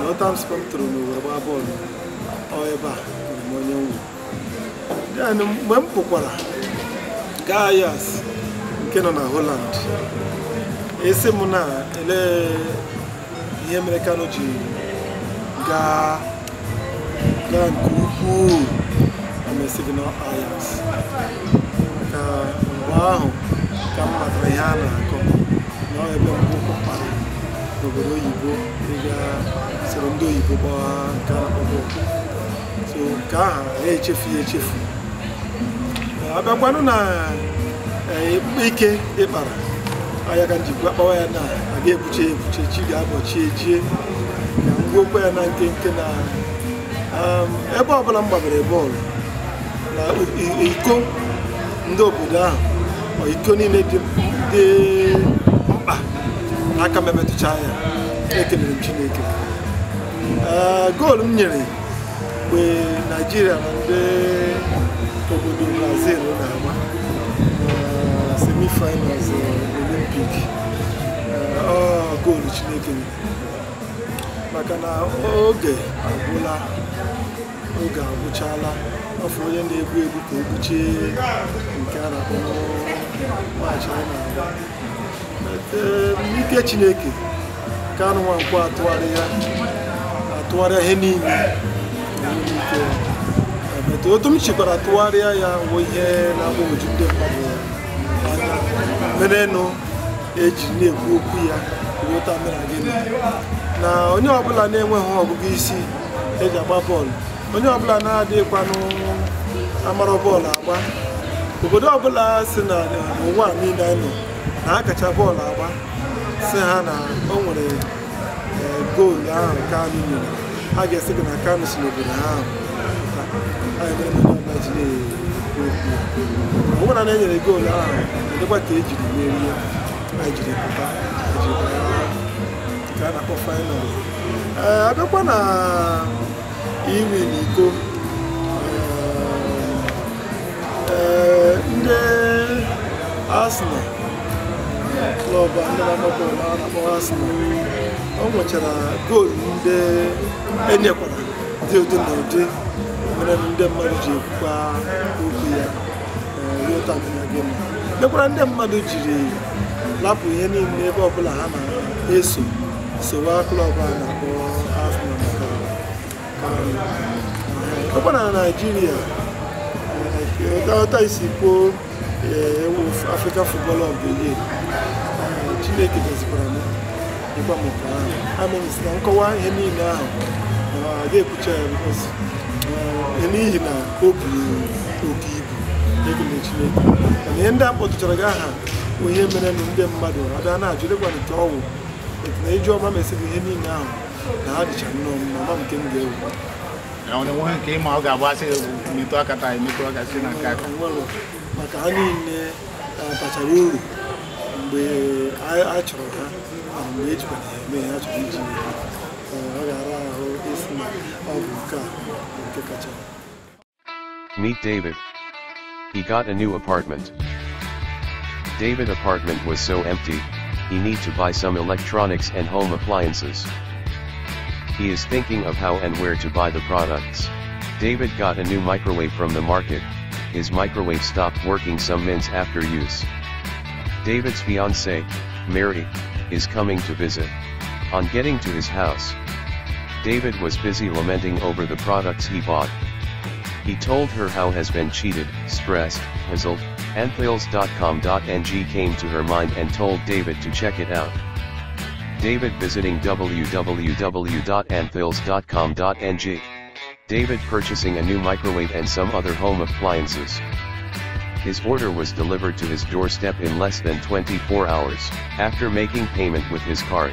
nọtamspa m tụrụ n'owere gbaa bọọlụ ebe a bụrụ m onye nwe mgbe m pụkwara gaa Ajax nke nọ na Holland esi m na elee ihe mere Kanu ji gaa nke ukwuu na esighị na Ajax ka mgbe ahụ ka m matara ihe a na-akọ na ebe mbụ kpara n'obodo oyibo ịga soro ndị oyibo kpọọ nke so nke ahụ ya echefu ya echefu abịakwanụ na eh, ike ịkpara ahịa ka njikwa kpawa ya na aga ebuche ebuche chi ga-abọchie jie ka ngwokwa ya na nkenke na um, ebe ọbụla m gbabere bọọlụ na iko ndị obodo ahụ iko niile dị mkpa aka m emetụcha ya ekelere m Chineke Eh, goolu m nyere mgbe naijiria na ndị obodo brazil na-agba eh, semifinals eh, olympic goolu chineke maka na oge agwụla oge agwụchala afọ onye na-egbu egbu ka o e gbuchie nke a na-akpọ maachị a na-agba ike chineke ka nwa nkwụ atụgharị ya tụgharịa ihe niile emetụ otu m chikwara tụgharịa ya bụ ihe na-agbagwoju ndị mmadụ mere nụ eji na-ekwu okwu ya ruota mere gịnị na onye ọbụla na-enweghị ọgụgụ isi eji agba bọọlụ onye ọbụla na-adịghịkwanụ amara bọọlụ agba obodo ọbụla si na ụwa niile nọ na akacha bọọlụ agba si ha na o nwere goolu ahụ nke anyị nyere a ga-esi gị na aka nụsi n'obodo ahụ ọ bụrụ na enyere goolu ahụ dịkwa ka ejiri merie jiri pụta nke a na-akpọ faịnal ee abịakwa na iwi eh, eh, na iko ee ndị Arsenal klọb ndị na-agbapụ a na-akpọ Arsenal ọ nwechara goolu ndị enyekwara dị ụdị na ụdị mere ndị mmadụ ji ekwukwa okwu ya eh, mekwara ndị mmadụ jiri lapụ ihe niile ebe ọbụla ha na-eso sowa klọb a na-akpọ afọ ọkwa na naijiria eh, ọta isi kwuo eh, ewu afrika futbọl ọbụ ihe chineke dozikwara m ịgba m ụka ahụ amịrịsị na nkọwa ihe niile ahụ ga-ekwucha ya bikos n'ihi na o buru oke ibu egele chineke mana ihe ndị a kpọtụchara gị aha bụ ihe mere na ndị mmadụ ada na-ajụ dịkwana nke ọwụ etu na iji ọma mesịrị ihe niile ahụ na ha dịcha nnọọ mma ma nke m ga-ewu nwe nke ịma ọ ga-abụ asị metụ aka taa emetụ aka site na nke aka maka ha niile bachara uru mgbe a chọrọ ha Meet David. He got a new apartment. David apartment was so empty, he need to buy some electronics and home appliances. He is thinking of how and where to buy the products. David got a new microwave from the market, his microwave stopped working some minutes after use. David's fiancée, Mary, is coming to visit, on getting to his house. David was busy lamenting over the products he bought. He told her how has been cheated, stressed, puzzled, and came to her mind and told David to check it out. David visiting www.anthills.com.ng. David purchasing a new microwave and some other home appliances. His order was delivered to his doorstep in less than 24 hours, after making payment with his card.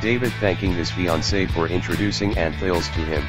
David thanking his fiancée for introducing Anthales to him.